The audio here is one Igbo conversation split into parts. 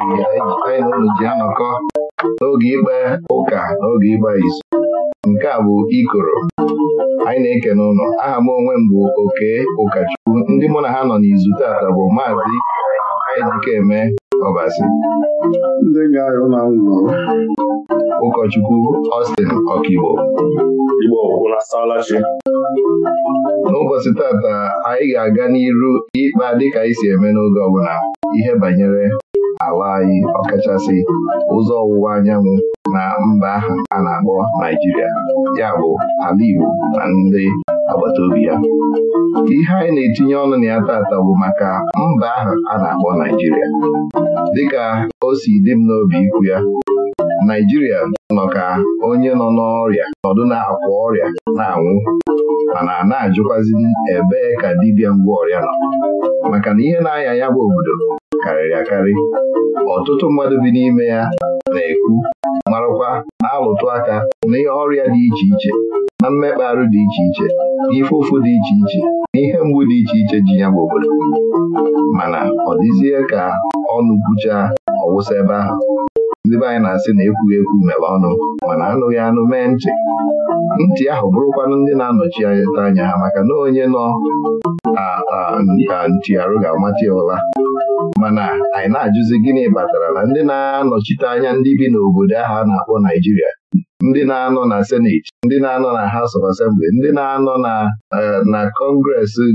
anyị na ji anọkọ n'oge ikpe ụka n'oge ịgba izu nke a bụ ikoro anyị na eke n'ụlọ. aha m onwe m bụ oke ụkọchukwu ndị mụ na ha nọ n'izu taata bụ maazị Ejikeme Ọbasi ụkọchukwu Austin Ọkigbo n'ụbọchị tata anyị ga-aga n'iru ịkpa dịka anyị si eme n'oge ọbụla ihe banyere ala anyị ọkachasị ụzọ ọwụwa anyanwụ na mba ahụ a na-akpọ Naijiria ya bụ ala Igbo na ndị agbata obi ya ihe anyị na-etinye ọnụ na ya tata bụ maka mba ahụ a na-akpọ Naijiria dịka o si dị m n'obi ikwu ya Naijiria nọ ka onye nọ n'ọrịa nọdụ na-akwa ọrịa na-anwụ mana a na-ajụkwazi ebee ka dibịa ngwa ọrịa nọ maka na ihe na-aya ya bụ obodo karịrị akarị ọtụtụ mmadụ bi n'ime ya na-ekwu marakwa na-alụtụ aka ihe ọrịa dị iche iche na mmekpa dị iche iche n'ife ụfụ dị iche iche na ihe mgbu dị iche iche ji ya bụ obodo mana ọ dịzie ka ọnụ bucha ọwụsa ebe ahụ ndị be anyị na-asị na ekwughị ekwu mere ọnụ mana anụghị anụ mee ntị ntị ahụ bụrụkwanụ ndị na-anọchi anya ha maka na onye nọ nka ntị arụ ga-amata ụla mana anyị na-ajụzi gịnị batara na ndị na-anọchite anya ndị bi n'obodo ahụ a na-akpọ Naijiria ndị na-anọ na seneti ndị na-anọ na House of Assembly ndị na-anọ na eh, na Congress eh,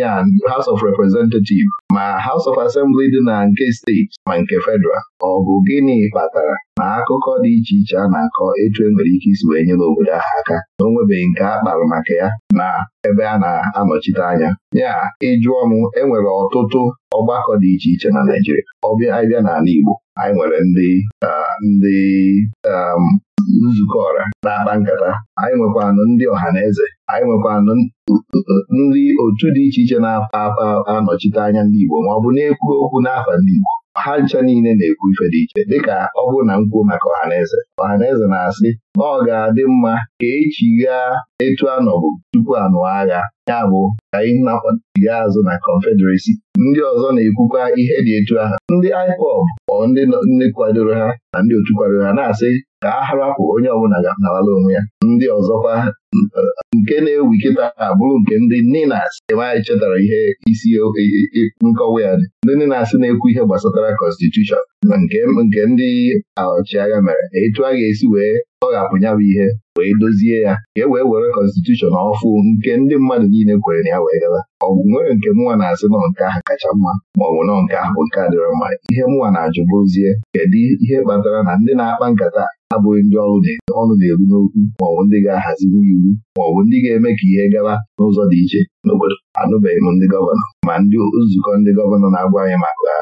ya House of Representatives ma House of Assembly dị na nke steeti ma nke federal ọ bụ gịnị kpatara na akụkọ dị iche iche a na-akọ etu e nwere ike isi wee nyere obodo ahụ aka na o nwebeghị nke a kpara maka ya na ebe a na-anọchite anya ya ịjụọ m enwere ọtụtụ ọgbakọ dị iche iche na Naịjirịa ọbịa abịa n'ala Igbo anyị nwere ndị ah, ndị um, nzukọ ọra na-akpa nkata anyị nwekwanụ ndị ọha na eze anyị nwekwanụ ndị otu dị iche iche na-apa anọchite anya ndị Igbo ma ọ bụ na-ekwu okwu n'afa ndị Igbo ha ncha niile na-ekwu ife dị iche dịka ọ bụrụ na m kwuo maka ọhaneze ọhaneze na-asị na ọ ga-adị mma ka echigha etu anọbụ tupu anụ agha ya bụ ka anyị na azụ na Confederacy ndị ọzọ na-ekwukwa ihe dị etu ahụ ndị IPOB ọ ndị kwadoro ha na ndị otu kwadoro ha na-asị ka a harapụ onye ọbụla ga-anarala onwe ya ndị ọzọkwa nke na ewu kịta abụrụ nke ndị ninas ebe anyị chetara ihe isi e, e, e, nkọwa ya dị ndị ninas na-ekwu ihe gbasatara kọnstitushọn nke ndị ọchịagha mere etu a ga-esi wee tọghapụ ya bụ ihe wee dozie ya ka e wee were kọnstitushọn ọfụ nke ndị mmadụ niile kwere na ya wee gara ọ bụ nwere nke mụnwa na-asị nọ nke ahụ kacha mma ma ọ bụ nọ nke ahụ bụ nke adịrọ mma ihe mụnwa na-ajụ bụzie. kedu ihe kpatara na ndị na-akpa nkata abụghị ndị ọrụ na-eru n'okwu maọbụ ọ ndị ga-ahazi n'iwu ma ọ bụ ndị ga-eme ka ihe gawa n'ụzọ dị iche n'obodo anụbeghị m ndị gọvanọ ma ndị nzukọ ndị gọvanọ na-agwa anyị maka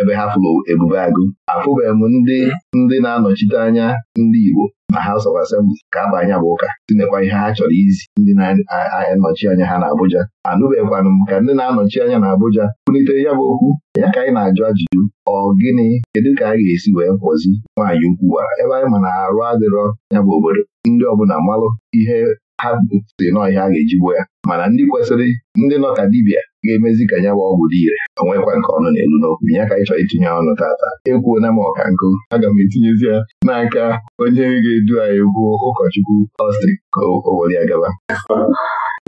ebe ha fụrụ ebube agụ afụbeghị m ndị ndị na-anọchite anya ndị Igbo na House of Assembly ka anya bụ ụka tinekwa ihe ha chọrọ izi ndị na-anọchi anya ha n'Abuja anụbeghịkwanụ m ka ndị na-anọchi anya n'Abuja kwunitere ya bụ okwu ya ka anyị na-ajụ ajụjụ ọ gịnị kedu ka a ga-esi wee kwọzi nwaanyị ukwu gwara ebe anyị ma na arụ adịrọ ya bụ obodo ndị ọbụla malụ ihe ha si n'ọhịa a ga-eji gbuo ya mana ndị kwesịrị ndị nọ ka dibịa ga-emezi ka ya ọgwụ dị ire onwekwa nke ọnụ na-elu n'okwu ya ka ịchọ chọrọ itinye ọnụ tata na m ọka nkụ aga m etinyezi ya n'aka onye ga-edu anyị gwuo ụkọchukwu ọstri ka ya gaba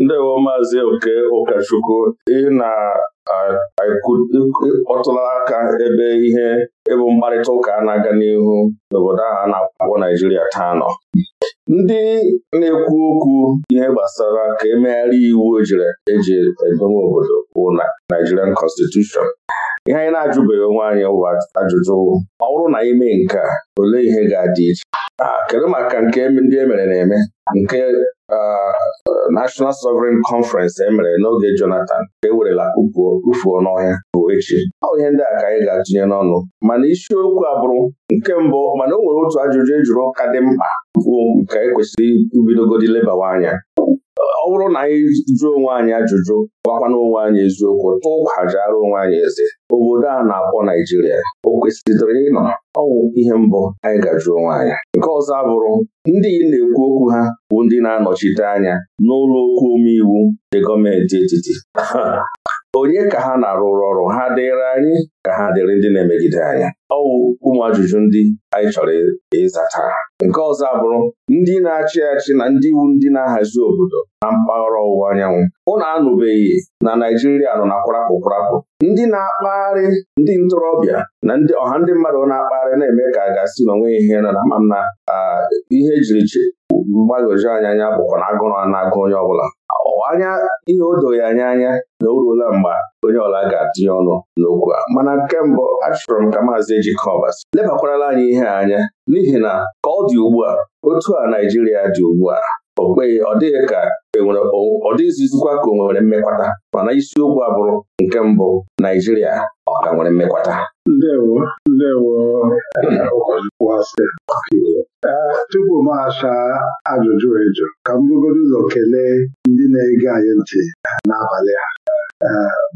ndị wo maazị oke ụkọchukwu ị na-akpọtụla aka ebe ihe ịbụ mkparịta ụka na-aga n'ihu n'obodo ahụ a na-akpọ Naijiria taa nọ ndị na-ekwu okwu ihe gbasara ka emegharị iwu ojiri e eji edowe obodo bụ na Nigerian Constitution ihe anyị na-ajụbeghị onwe anyị ụwa ajụjụ ọ bụrụ na ime nke a olee ihe ga-adị iche ah, kedu maka nke ndị e mere na-eme nke ah, National Sovereign Conference emere n'oge Jonathan ka e werela n'ọhịa bụ echi ọ ihe ndị a ka anyị ga-atụnye n'ọnụ mana isiokwu abụrụ nke mbụ mana o nwere otu ajụjụ e jụrụ ụka dị mkpa nke anyị e kwesịrị ibidogodi lebawa anya ọ bụrụ na anyị jụọ onwe anyị ajụjụ gwakwana onwe anyị eziokwu tụọ kwajara onwe anyị eze obodo a na-akpọ Naijiria o kwesịrị ịnọ ọnwụ ihe mbụ anyị ga-ajụ onwe anyị nke ọzọ abụrụ ndị na-ekwu okwu ha bụ ndị na-anọchite anya n'ụlọ okwu omeiwu dị gọọmenti etiti onye ka ha na-arụrụ ọrụ ha dịrị anyị ka ha dịrị ndị na-emegide Ọ ọwụ ụmụ ajụjụ ndị anyị chọrọ ịza taa nke ọzọ abụrụ ndị na-achị achị na ndị iwu ndị na-ahazi obodo na mpaghara ọwụwa anyanwụ ụnụ anụbeghị na Naijiria nọ na kwarapụ kwarapụ ndị na-akpagharị ndị ntorobịa na ndị ọha ndị mmadụ na-akpagharị na-eme ka a ga-asị na onwe ihe na ma m na ihe ejiri mgbagwoju anya anya bụkwa na agụrụ na-agụ onye ọbụla anya ihe o doghị anya anya na o ruola mgbe onye ọla ga-atịnye ọnụ n'okwu a mana Nke mbụ, achọrọ m ka maazị Ejikobas lebakwarala anyị ihe anya n'ihi na ka ọ dị ugbu a otu a Naijiria dị ugbu a okpeghi ọ dịghị ka e ọ dịghịzizikwa ka o nwere mmekwata mana isiokwu abụrụ nke mbụ Naijiria ọ ka nwere mmekwata ndewo ndewo tupu m achaa ajụjụ eju ka m bugodo ụzọ kelee ndị na-ege anyị ntị n'abalị a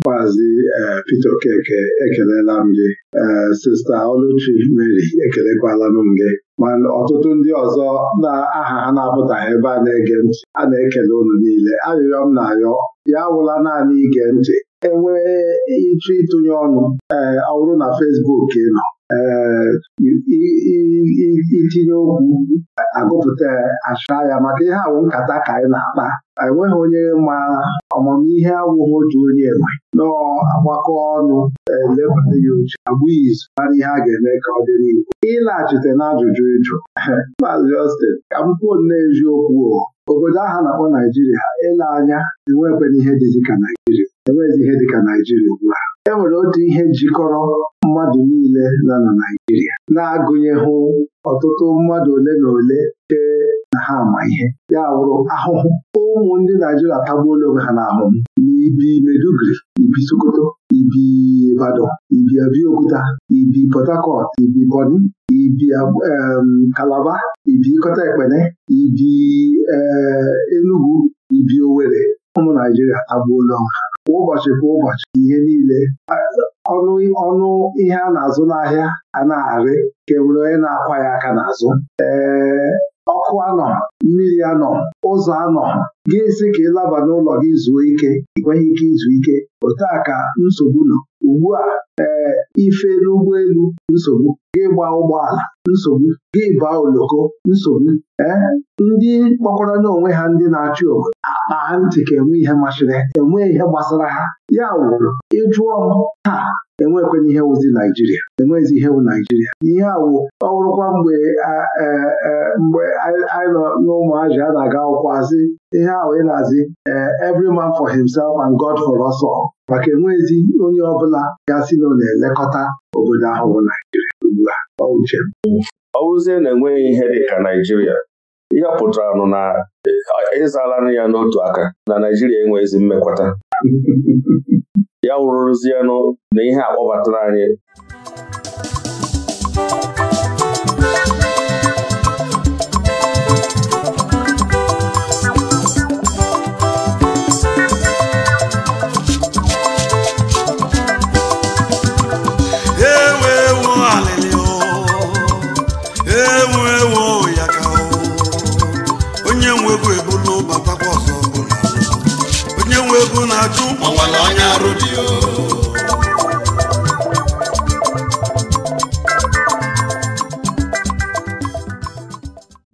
maazị eh, Peter Okeke ekelela m gị eh, sista Oluchi Mary ekelekwala m gị mana ọtụtụ ndị ọzọ na aha ha na-apụtaghị ebe a na-ege ntị a na-ekele unu niile arịrịọ m na-arịọ ya awụla naanị ige ntị enwee ịchọ ịtụnye ọnụ ee eh, ọ bụrụ na fesbuk nọ ee eh, itinye okwu agụpụta achụa ya maka ihe awụ nkata ka anyị na-akpa enweghị onye ma ọmụmihe awụghị otu onye enwe nọọ agbakọ ọnụ elepụta eh, ya uche agbụ izu mara ihe a ga-eme ka ọ dị n'ihu ịlaghachite n'ajụjụ ịjụ Maazị Justin ka m kwuo nne eziokwu obodo aha na-akpọ Naijiria ele anya enwekwana ihe dịka ka Naijiria enwezi ihe dịka Naijiria ugbu a e nwere otu ihe jikọrọ mmadụ niile nọ na Naijiria na hụ ọtụtụ mmadụ ole na ole chee na ha ama ihe ya bụrụ ahụhụ ụmụ ndị Naijiria tagbuola onwe ha n'ahụhụ Ibi Meduguri ibi Sokoto ibi Ibadan ibi Abiokuta ibi Port Harcourt ibi boni ibi Kalaba um, ibi Kọta Ekpene ibi eh, Enugu ibi Owerri ụmụ Naijiria agbuola kwa ụbọchị kwa ụbọchị ihe niile ọnụ ọnụ ihe a na-azụ n'ahịa a na-arị ka enwere onye na-akwa ya aka n'azụ ee eh, ọkụ anọ mmiri anọ ụzọ anọ gị si ka ịlaba n'ụlọ gị zuo ike ị nweghị ike izu ike otu a ka nsogbu nọ ugbu a ee eh, ife n'ụgbọelu nsogbu gị gba ụgbọala nsogbu gị baa oloko nsogbu ee eh, ndị kpọkwara onwe ha ndị na-achị obodo akpa ntị ka enwe ihe masịrị enwe ihe gbasara ha ya wụrụ ịjụọ m taa enwekwenye ihe wụzi Naijiria enwezi ihe wụ Naijiria ihe awụ ọwụrụkwa mgbe mgbe anyị nọ n'ụmụazị a na-aga akwụkwọ asị ihe ahụ ị na-azị every man for himself and God for us all maka enwezi onye ọbụla ya si na ọ na-elekọta obodo ahụ bụ Naijiria ugbu a ọ uche na enweghị ihe dịka Naijiria ihe pụtara nụ na ịzala ya n'otu aka na Naijiria enweghịzi mmekwata ya wụrụrụzie na ihe akpọbatara anyị na arụ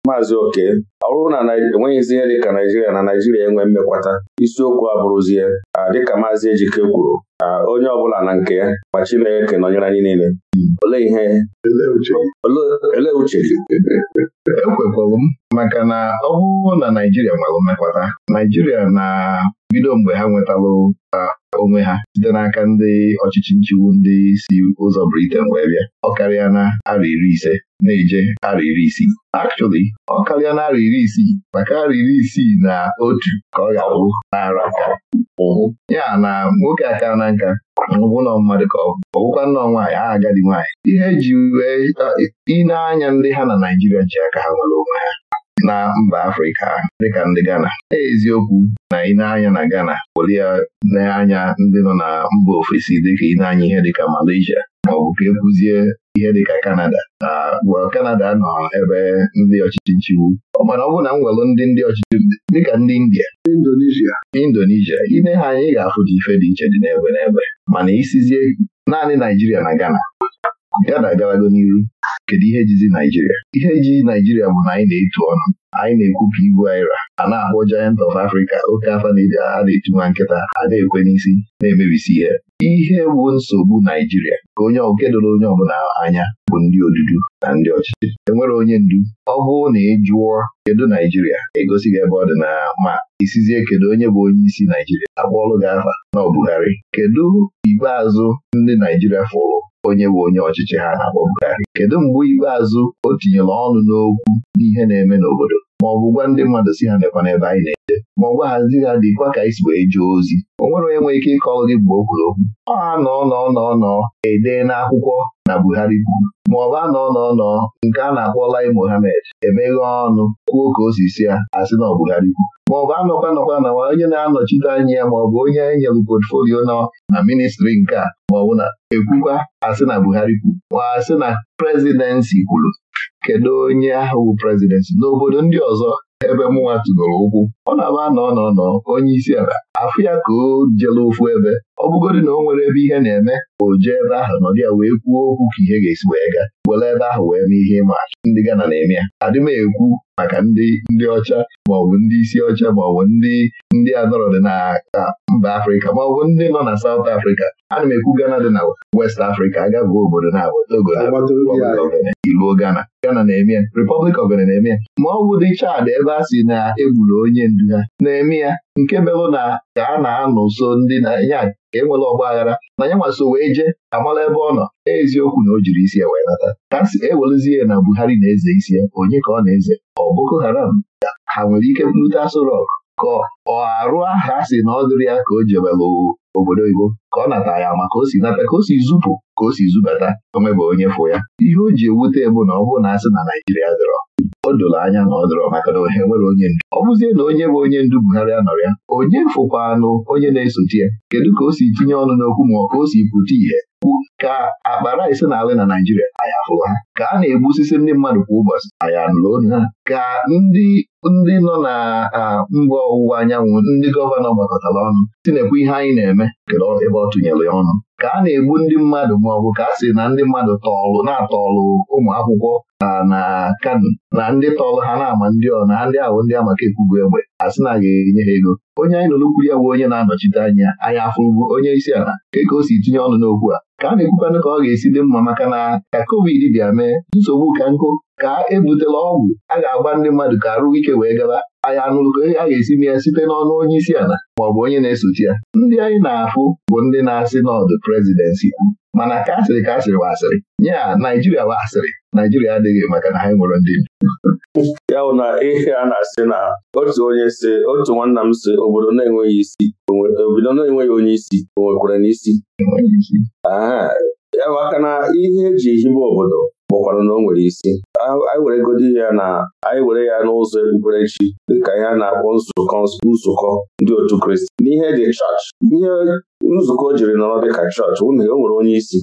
maazị oke ọ bụrụ na enweghịzi ihe dị ka naijiria na naijiria enwe mmekwata isiokwu abụrụzie dịka maazị ejike kwuru Onye ọ bụla na nke ya ma Chineke nọnyere anyị niile olee ihe olee uche ekwekwalụ e m maka na ọ na Naijiria nwere mmekwata Naijiria na bido mgbe ha nwetalụ onwe ha site n'aka ndị ọchịchị nchịwu ndị si ụzọ Briten wee bịa ọ karịa na ara iri ise na-eje ara iri isii Actually, ọ karịa na ara iri isii maka ara iri isii na otu ka ọ ga-abụ n'ara ụhụ ya na nwoke aka na nka ọbụ nọ mmadụ ka ọ ọbụkwa nnọọ nwaanyị ha agadi nwaanyị ihe eji wee ị na-anya ndị ha na Naịjirịa ji aka ha nwere onwe ha na mba Afrịka dịka ndị Ghana e eziokwu na ị na-anya na Ghana welie na-anya ndị nọ na mba ofesi dịka ị anya ihe dịka Malaysia maọbụ ka ekwuzie ihe dịka Kanada na Kanada nọ ebe ndị ọchịchị nchiwu mana ọ bụ na m ndị ndị ọchịchị dịka ndị India Indonesia Indonesia ine ha anya ị ga-afụta ife dị iche dị n'ebe n'ebe mana isizie naanị Naijiria na Ghana ya na-agarago n'iru kedu ihe jizi Naijiria ihe ji Naijiria bụ na anyị na-etu ọnụ anyị na-ekwupụ ibu aira a na-akpọ Giant of Africa oke afa na-eji a na etunwa nkịta a na-ekwe n'isi na-emebisi ihe ihe bụ nsogbu Naijiria ka onye oke doro onye ọbụla anya bụ ndị odudu na ndị ọchịchị enwere onye ndu ọ bụrụ na ị e jụọ kedu Naijiria egosi gị ebe ọ dị na ma isizie e kedu onye bụ onye isi Naijiria akpọọlụ gị afa na ọ Buhari kedu ikpeazụ ndị Naijiria fụrụ onye bụ onye ọchịchị ha na-akpọ kedu mgbe ikpeazụ o tinyere ọnụ n'okwu n'ihe na-eme n'obodo ma ọ bụ gwa ndị mmadụ si ha nekwana ebe anyị na-eje ma ọ gwaghazi ha dịkwa ka anyị si wee jee ozi o nwere onye nwere ike ịkọ gị mgbe o okwu ọ anọ nọ nọ nọ edee n'akwụkwọ na Buhari kwuru ma ọ bụ anọ nọ nọ nke a na-akpọ Lai Mohammed emeghe ọnụ kwuo ka o si si ya asị na ọ Buhari kwuru ma ọ bụ anọkwa nọkwa na onye na-anọchite anya ya ma ọ bụ onye nyere potfolio nọ na ministri nke a maọbụ na ekwukwa asị na Buhari kwuru ma asị na prezidensi kwuru kedu onye ahụ bụ prezidenti n'obodo ndị ọzọ ebe mụnwa tugoro ụkwụ ọ na-aba nọ nọnọ onye isi ala afụ ya ka o jela ofu ebe ọ bụgodị na o nwere ebe ihe na-eme o jee ebe ahụ nọdụ ya wee kwuo okwu ka ihe ga-esi wee gaa were ebe ahụ wee mee ihe ịma achụ ndị Gana na-eme ya adị m ekwu maka ndị ndị ọcha maọbụ ndị isi ọcha maọbụ ndị ndị adọrọdị na mba Afrịka maọbụ ndị nọ na Saụt Afrịka ana m ekwu Gana dị na West Afrịka agabụ obodo na Togo iluo Gana Gana na-eme ya Republic of Benin na-eme ya ma dị Chad ebe a sị na egburu onye du ha na-eme ya nke merụ na ka a na-anọ nso ndị na ya enwere ọgba aghara na ya nwa so wee jee amala ebe ọ nọ eziokwu na o jiri isi ya wee nata ka si ewerezie na Buhari na-eze isi ya onye ka ọ na-eze ọ Boko Haram ha nwere ike bute Aso Rock ka ọ arụ aha a na ọ dịrị ya ka o jebelụ obodo oyibo ka ọ nata ya maka o si nata ka o si zupụ ka o si zubata omebe onye fụ ya ihe o ji ewute bụ na ọ bụrụ na asị na Naijiria dọrọ o doro anya na ọ dọrọ maka na ohe nwere onye ndu ọ bụzie na onye bụ onye ndu Buhari nọrọ ya onye fụkwanụ onye na-esote ya kedu ka o si tinye ọnụ n'okwu ma ọ ka o si pụta ihe ka akpara rice na-alị na Naijiria anyị afụrụ ha ka a na egbu osisi ndị mmadụ kwa ụbọchị anyị anụrụ onu ha ka ndị ndị nọ na mba ọwụwa anyanwụ ndị gọvanọ gbakọtara ọnụ na-ekwu ihe anyị na-eme kedu ebe ọ tụnyere ya ọnụ ka a na-egbu ndị mmadụ ma ọ bụ ka a sị na ndị mmadụ tọọlụ na-atọọlụ ụmụ akwụkwọ na kano na ndị tọọlụ ha na-ama ndị ọ na ndị ahụ ndị amaka ekwubu egbe a sị na a ga-enye ha ego onye anyị nụrụ kwuru ya bụ onye na-anọchite anya anyị afụrụbu onye isi ala ka o si tinye ọnụ n'okwu a ka a na-ekwukwanụ ka ọ ga-esi dị mma maka na ka covid bịa mee nsogbu ka nkụ ka ebutela ọgwụ a ga-agba ndị mmadụ ka arụ ike wee gaba anyị ka a ga-esi na ya site n'ọnụ onye isi ala maọbụ onye na-esochi ya ndị anyị na-afụ bụ ndị na-asị n'ọdụ prezidensị kwu mana ka asịrị ka asịrị wa asịrị nye ya Naijiria wa asịrị Naijiria adịghị maka na ha nwere ndị ya bụ na ihe a na-asị na otu onye si otu nwanna m si obodo na-enweghị isi obodo na-enweghị onye isi o nwekwara n'isi ya bụ aka na ihe eji hibe obodo bụkwara na o nwere isi anyị were godi ya na anyị were ya n'ụzọ ekpukperechi dịka ya na-akpọ nzukọ nzukọ ndị otu Kristi n'ihe dị chọọchị ihe nzukọ jiri nọrọ dịka chọọchị ụnụ o e nwere onye isi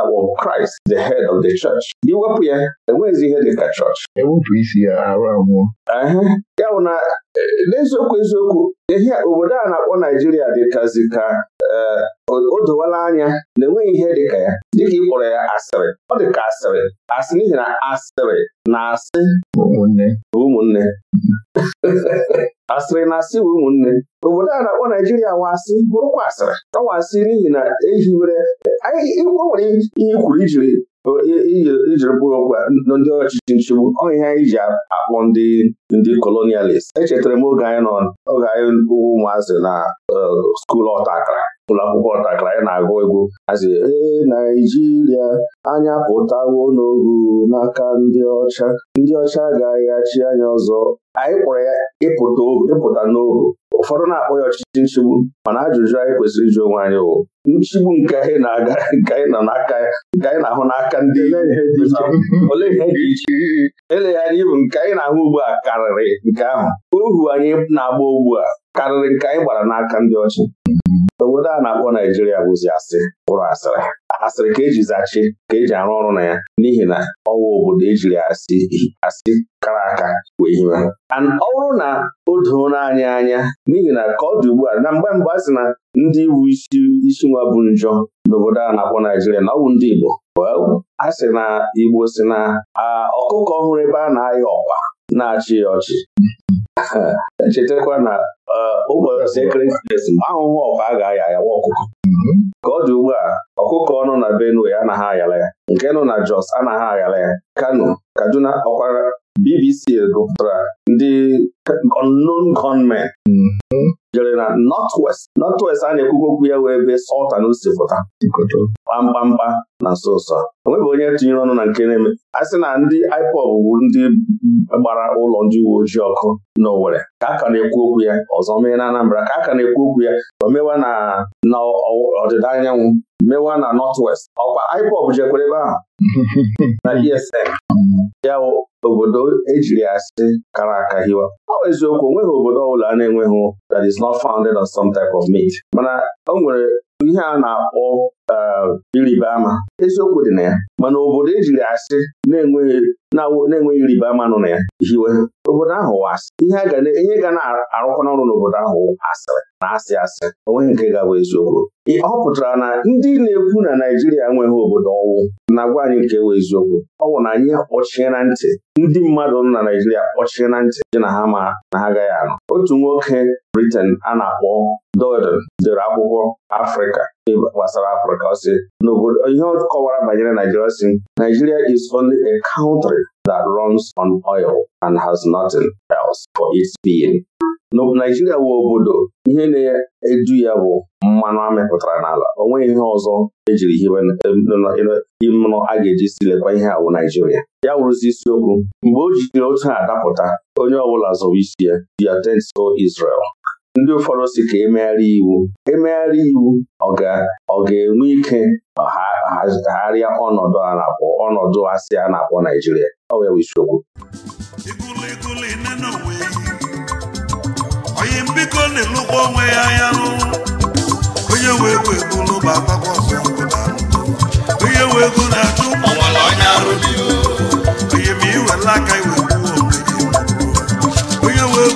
akpọ mm-hmm. Kraịst the head of the church iwepụ ya enweghịzi ihe dịka chọọchị ewepụ isi ya arụ anwụọ ya bụ na eh, n'eziokwu eziokwu ehia obodo a na-akpọ Naijiria dịkazi ka eh, o dowala anya na enweghị ihe dịka ya dịka ị kpọrọ ya asịrị ọ dịka asịrị asị n'ihi na asịrị na asị ụmụnne asịrị na asị bụ ụmụnne obodo a na-akpọ Naijiria wasị bụrụkwa asịrị asị n'ihi na ehiwere o e nwere ihe kwuru ijiri ijiri mkpụrụ okwu ndị ọchịchị nchegbu ọ ihe anyị ji akpọ ndị ndị kolonialist echetara m oge anyị nọ oge anyị ụmụazị na uh, skuulu ọta akara ụlọ akwụkwọ ọtakara ya na-agụ egwu hazi ee Naijiria anya pụtawo n'ohu n'aka ndị ọcha ndị ọcha agaghị achị anya ọzọ anyị kpọrọ ya ịpụta ohu ịpụta n'ohu ụfọdụ na-akpọ ya ọchịchị nchigbu mana ajụjụ anyị kwesịrị ịjụ onwe anyị wụ nchigbu nke anyị na-aga nke anyị nọ n'aka nke anyị na-ahụ n'aka ndị ole ihe dị iche eleghị anya ibu nke anyị na-ahụ ugbu a karịrị nke ahụ ohu anyị na-agba ugbu a karịrị nke anyị gbara n'aka ndị ọcha obodo a na-akpọ Naijiria bụzi asị ụrụ asịrị asịrị ka eji zachi ka eji arụ ọrụ na ya n'ihi na ọwa obodo ejiri asị asị kara aka wee hiwe ọ bụrụ na o doona anyị anya n'ihi na ka ọ dị ugbu a na mgbe mgbe a sị na ndị bụ isi isi nwa bụ njọ n'obodo a na-akpọ Naijiria na ọ bụ ndị Igbo a sị na Igbo si na ọkụkọ ọhụrụ ebe a na-ayọ ọkwa na-achị ya ọchị chetakwa na uh, ụbọchị ekeresimesi ahụhụ ọkwa a ga-aya ya nwa ọkụkọ ka ọ dị ugbu a ọkụkọ ọnụ na Benue anaghị ayala ya nke nọ na Jos anaghị ayala ya Kano Kaduna ọkwara BBC gụpụtara ndị unknown gunmen mm-hmm. jere na Northwest Northwest a na-ekwukwu okwu ya wee ebe Sultan si pụta mkpamkpa na nso nso onweghị onye tinyere ọnụ na nke na-eme a sị na ndị IPOB bụ ndị gbara ụlọ ndị uwe ojii ọkụ owere ka a ka na-ekwu okwu ya ọzọ mee na Anambra ka a ka na-ekwu okwu ya o mewa na ọdịda anyanwụ mewa na Northwest ọkwa IPOB jekwere ebe ahụ na ESN ya obodo ejiri asị kara aka hiwa ọ bụ eziokwu onweghị obodo ọbụla a na-enweghị that is not founded on some type of meat mana o nwere ihe a na-akpọ ịrịba eh, ama eziokwu dị na ya mana obodo ejiri asị na-enweghị ịrịba ama nọ na ya hiwe obodo ahụ asị ihe ga na-arụkwana n'ọrụ n'obodo ahụ asịrị na asị asị onweghị nke ga-abụ eziokwu ọ pụtara na ndị na-ekwu na Naijiria enweghị obodo ọwụ na-agwa anyị nke wee eziokwu ọ bụ na anyị akpọchie na ntị ndị mmadụ nọ na Naijiria kpọchie na ntị dị na ha ma na ha agaghị anọ otu nwoke Britain a na-akpọ Dodon dere akwụkwọ Afrịka gbasara Afrịka ọ n'obodo ihe banyere Naijiria si Nigeria is only a country that runs on oil and has nothing else for its being. Naijiria wụ obodo ihe na-edu ya bụ mmanụ amịpụtara n'ala o nweghị ihe ọzọ ejiri hiwe ịmụnụ e, a ga-eji silekwa ihe awụ Naijiria ya wụrụzi isiokwu mgbe o jiri otu a dapụta onye ọbụla zọrọ isi ya the attent so Israel ndị ụfọdụ si ka emegharị iwu emegharị iwu ọ ga-enwe ike agharịa ọnọdụ a na-akpọ ọnọdụ asị a na-akpọ Naijiria ọ wee isiokwu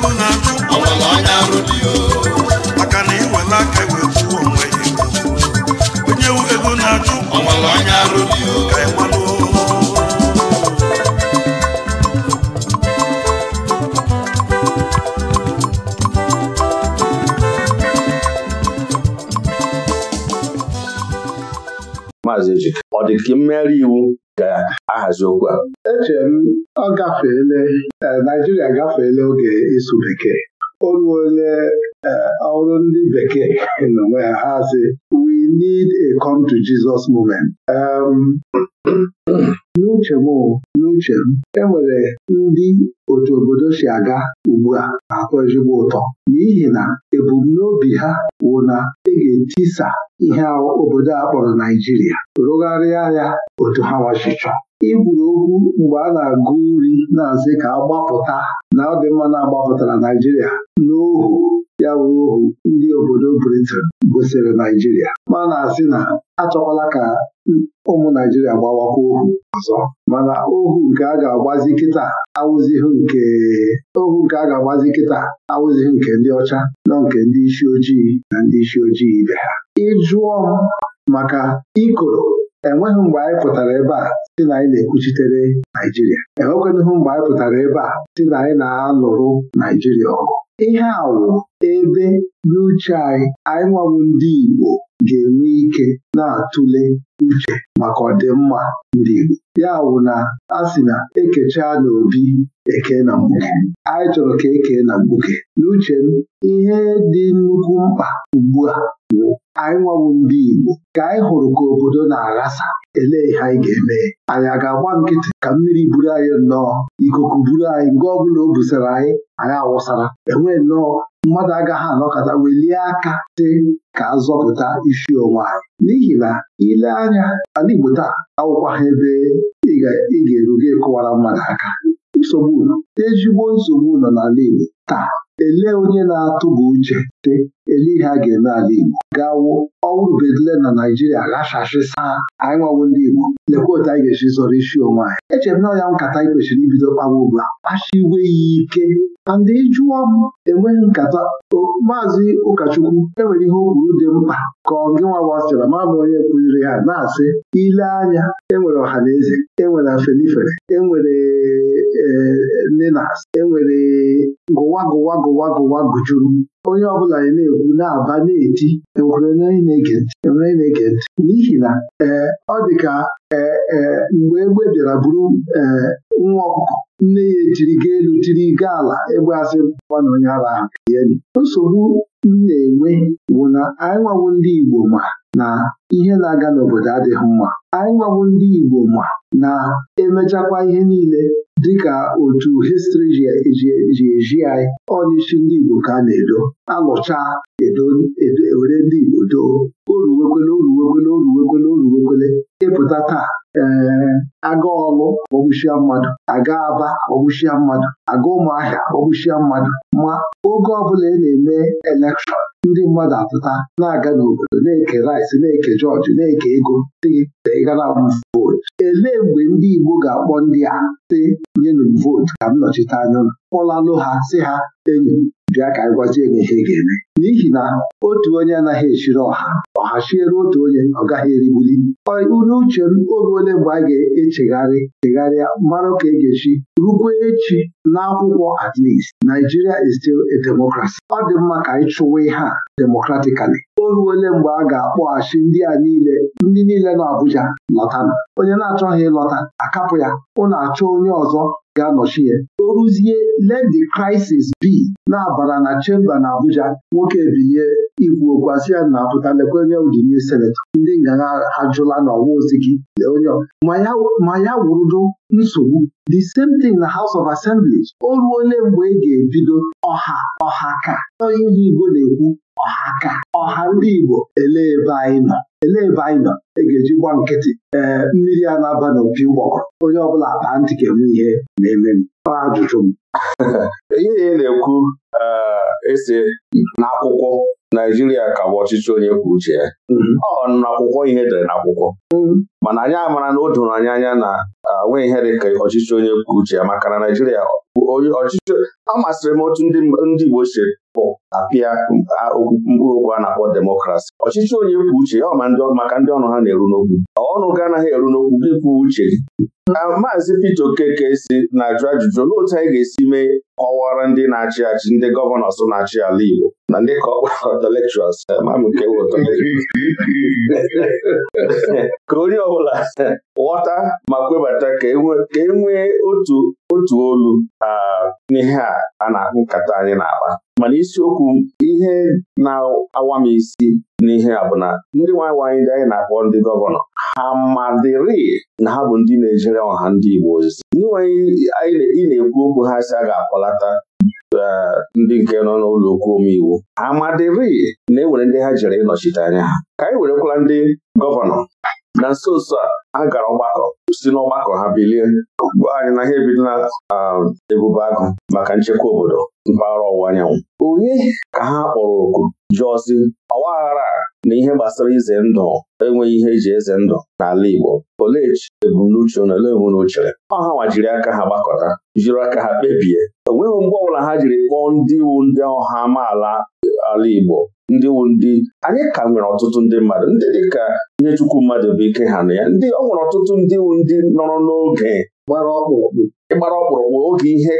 onye ọmalụ anya arụ dị maazị ejike ọ dị ka mmegharị iwu ga-ahazi okwu a eche m ọ gafeele, eh, Naijiria gafeele oge ịsụ bekee o ruole ọrụ eh, ndị bekee nọ ha sị we need a come to Jesus moment. Um, n'uche m n'uche m enwere ndị otu obodo si aga ugbu a na-atọ ezigbo ụtọ n'ihi na ebumnobi ha wụ na e ga-etisa ihe obodo a kpọrọ Naijiria rụgharịa ya otu ha wachichọ igwuru okwu mgbe a na-agụ nri na-asị ka agbapụta na ọ dị mma na-agbapụtara Naijiria n'ohu A wuru ohu ndị obodo britan gosiri Naijiria ma na-asị na achọkwala ka ụmụ Naijiria gbawakwa ohu ọzọ mana ohu nke a ga-agbazi kịta awụzighị nke ohu nke a ga-agbazi kịta nke ndị ọcha nọ nke ndị isi ojii na ndị isi ojii ibe ha ịjụọ maka ikoro enweghị mgbe anyị pụtara ebe a si na anyị na-ekwuchitere Naijiria enwekwanụhụ mgbe anyị pụtara ebe a si na anyị na-alụrụ Naijiria ọgụ ihe a wụ ebe n'uche anyị anyị ndị Igbo ga-enwe ike na-atụle uche maka ọdịmma ndị Igbo ya wụ na a sị na ekechaa n'obi eke na mgbuke anyị chọrọ ka ekee na mgbuke n'uche m ihe dị nnukwu mkpa ugbu a bụ anyị nwawu ndị Igbo ka anyị hụrụ ka obodo na-aghasa elee ihe anyị ga-eme anyị a ga-agba nkịtị ka mmiri buru anyị nnọọ ikuku buru anyị nke ọ o busara anyị anyị awụsara enwee nnọọ mmadụ agaghị anọkọta welie aka dị ka azọpụta isi onwe n'ihi na ile anya ala Igbo taa awụkwaghị ebe ị ga eruge kụwara mmadụ aka nsogbu ezigbo nsogbu nọ n'ala Igbo taa elee onye na-atụba uche te ele ihe a ga-eme ala Igbo gawo ọwụrụ bedile na Naijiria ghachasịsa anyị nwawo ndị Igbo lekwa otu anyị ga-esi zọrọ isi onwe anyị echere m na ọnya nkata anyị kwesịrị ibido kpawa ugbu a kpachiwe ya ike na ndị jụọ m enweghị nkata maazị ụkọchukwu enwere ihe okwuru dị mkpa ka ọ gị nwa wasịra ma bụ onye kụziri ha na-asị ile anya enwere ọha na eze enwere afenifere enwere e, e, nenas enwere gụwa gụwa gụwa gụjuru onye ọbụla na-ekwu na-aba na-eti ekwere na-ege ntị n'ihi na ee ọ dị ka ee e, mgbe egbe bịara buru ee nwa ọkụkọ nne ya ejiri ga elu tiri ga ala egbe asị na onye ara ahụ nsogbu m na-enwe bụ na anyị nwawo ndị Igbo ma na ihe na-aga n'obodo adịghị mma anyị nwawo ndị Igbo ma na-emechakwa ihe niile dịka otu histri ji eji anyị ọ ndị Igbo ka a na-edo alụcha were ndị Igbo doo oruwekwele oruwekwele oruwekwele oruwekwele ịpụta taa ee aga ọlụ ọgwụchia mmadụ aga aba ọgwụchia mmadụ aga ụmụahịa ọgwụchia mmadụ ma oge ọbụla ị na-eme elekshọn ndị mmadụ atụta na-aga n'obodo na-eke rice na-eke jọjị na-eke ego dị ịga vootu elee mgbe ndị Igbo ga-akpọ ndị a sị nyenụ m vootu ka m nọchite anya ụlọ kpọlalụ ha si ha enyi bịa ka anyị gwazie gị ihe ga-eme n'ihi na otu onye anaghị echiri ọha ọha chiere otu onye ọ gaghị erigbuli uri uche m oge ole bụ a ga-echegharị chegharịa mara ka e ga-echi rukwe echi n'akwụkwọ at least Nigeria is still a democracy ọ dị mma ka anyị chụwa ihe a Oru ole mgbe a ga-akpọghachi ndị a niile ndị niile nọ Abuja lọtanụ onye na-achọghị ịlọta akapụ ya ụnụ achọ onye ọzọ ga-anọchi ya o ruzie let the crisis na-abara na chemba na Abuja nwoke ebinye ikwu okwu ya na apụta lekwa onye n'i senetọ ndị ngagha ajụla na ọwa ozigi onye ma ya wụrụdo nsogbu the same thing na House of Assembly o ole mgbe ị e ga-ebido ọha ọha ka ihe Igbo na-ekwu ọha ka ọha ndị Igbo elee ebe anyị nọ elee ebe anyị nọ e ga-eji gwa nkịtị ee mmiri a na-aba n'opi ụgbọkọ onye ọbụla baa ntị ga enwe ihe na-eme m ọ ajụjụ m ihe ihe na-ekwu eh, ese n'akwụkwọ Naijiria ka bụ ọchịchị onye kwuo uche ya mhm. ọ n'akwụkwọ ihe dere n'akwụkwọ mhm. mana anyị amara na o doro anyị anya na eh, onwe ihe dị ka ọchịchị onye kwuo uche ya maka na Naijiria onye ọchịchị m otu ndị Igbo si bụ apịa mkpụrụ okwu a na-akpọ demokrasi ọchịchị onye kwuo uche ya maka ndị ọnụ ha na-eru n'okwu ọnụ gị anaghị eru n'okwu gị kwuo uche na maazị pete Okeke si na-ajụ ajụjụ olee otu anyị ga-esi mee kọwara ndị na-achị achị ndị gọvanọ so na-achị ala Igbo na ndị ka eh, ka onye ọbụla ghọta ma kwebata ka e nwee e otu otu olu n'ihe a na-akpụ nkata anyị na-akpa mana isiokwu ihe na-awa m isi n'ihe a bụ na ndị nwanyị nwaanyị ndị anyị na-akpọ ndị gọvanọ ha madịrị na ha bụ ndị na-ejere ọha ndị Igbo ozizi ndị nwaanyị ị na-ekwu okwu ha si a ga-akpọlata eh, ndị nke nọ n'ụlọ okwu omeiwu amadịrị na e nwere ndị ha jere ịnọchite anya ha ka anyị werekwala ndị gọvanọ na nso nso a a gara ọgbakọ si n'ọgbakọ ha bilie gwa anyị na ha ebido na um, ebube agụ maka nchekwa obodo mpaghara ọwụwa anyanwụ onye ka ha kpọrọ oku jụọzi ọgbaghara na ihe gbasara ize ndụ enweghị ihe eji eze ndụ n'ala Igbo olee ebumnuche na ole hụ na Ọ ha nwajiri aka ha gbakọta jiri aka ha kpebie o nweghị mgbe ọbụla ha jiri kpọọ ndị iwu ndị ọha amaala ala Igbo ndị wu ndị anyị ka nwere ọtụtụ ndị mmadụ ndị dịka ihe chukwu mmadụ bụ ike ha na ya ndị ọ nwere ọtụtụ ndị wu ndị nọrọ n'oge gbara ịgbara ọkpụrụkpụ oge ihe